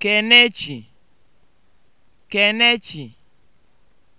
Kenechi Kenechi